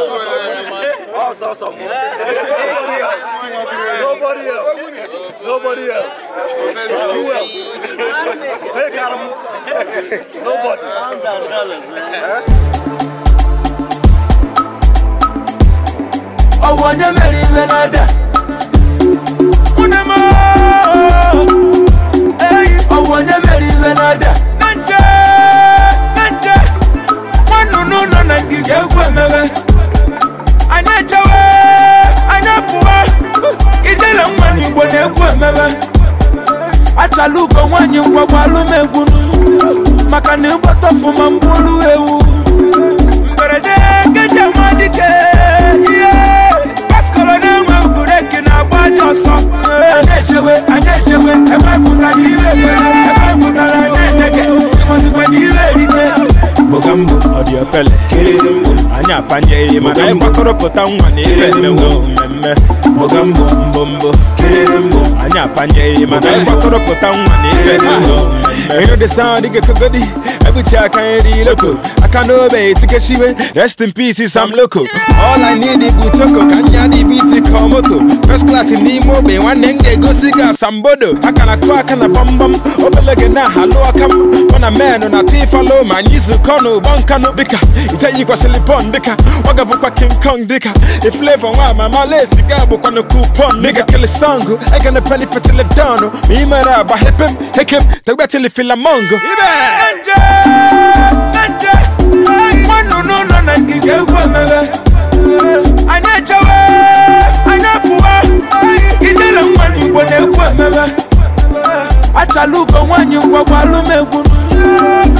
Us, us, us. Nobody else. Nobody else. Nobody else. Who else? Hey, got him. Nobody. I'm down, dollars, man. I want to marry another. Unama. I want to marry another. egwu emebe achala ugo nwaanyị ngwagwa alụmegwu maka na ịgbata ọfụma ewu mberede nkeji amadike ihe paskọrọ na-enwe bureki na-agba aja ọsọ anyị echewe anyị echewe ebe pụtara ihe ebere ebe pụtara na-edege ịmazikwa na ihe eri gambo gambo ọ dị ofele kelezimbo anyị apanye ihe mana anyị gbakọrọpụta nwa na ife mmewo mmemme mbogambo mbombo kelezimbo anyị apanye ihe mana anyị gbakọrọpụta nwa na ife mmewo mmemme ihe dị saa dị gekogodi ebuchi aka nri loko aka n'obe etikeshiwe rest in peace I'm loko all i need is choko ka nya dị biti ka ọmoto first class in the. m ogbe nwanne m ga-egosi gị asambodo aka na kụọ aka na gbamgbam obele gị na alụ aka m mụ na menụ na tifalo ma anyị zukọ n'ụgbọ nkanụ dịka ijeyi kwasịrị pon dịka ọ gabụkwa king kong dịka iflevo nwa mama lesi ga bụkwanụ kupon dịka kilisongụ egene peni fetiledonụ ma mere agba hepem hekem tegbetilifila filamongo. ibe egwu emebe achala ugo nwaanyị ngwagwa alụmegwu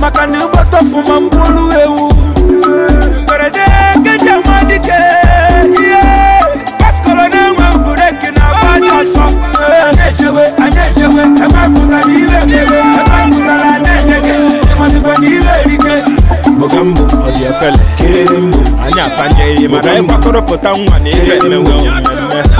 maka na ịgbata ọfụma mgbulu ewu mberede keji amadike ihe kaskọrọ na-enwe bureki na agba dị ọsọ anyị ejewe anyị ejewe ebe pụtara ire emewe ebe pụtara anyị enyege ịmazikwa na ire erike oge mbụ ọ dị efele kere mbụ anyị apanye ihe mana ịgbakọrọpụta nwa na ihe emewe mmemme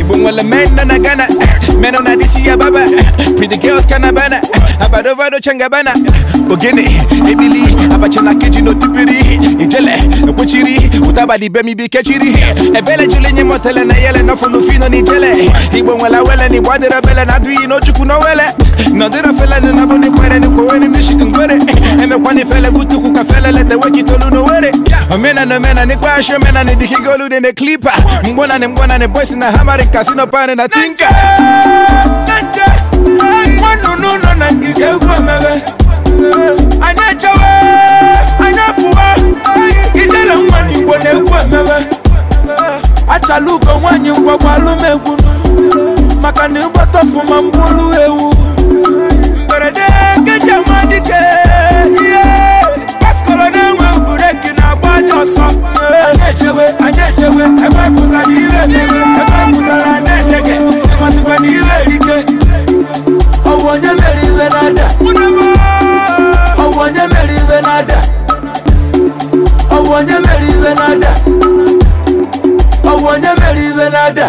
ibongwa le man nana gana man ona di siya baba pretty girls kana bana abado vado changa bana bogene ebili abachana keji no tibiri ijele kuchiri utaba di bemi bi kechiri ebele chile nye motele na yele no funu fino ni jele ibongwa la wele ni bwadera bele na duyi no chuku no wele na dira fele ni nabo ni kwere ni kwere ni mishikin kwere eme kwani fele kutuku ka fele lete weki tolu no were yeah Mina no mena ni kwasho mena ni dikigolu de ne klipa Mbona ne mbona ne boys na hamari casino pane na tinka Mwanu nuno na kige uko mewe Anachawe Anapuwa Kijela mwani mwanyi kwa kwa gunu Makani mbotofu mambulu I ọwọ́ nye mere iwe nada I nye mere iwe nada ọwọ́ nye mere iwe nada.